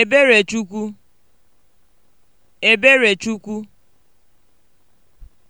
Eberechukwu Eberechukwu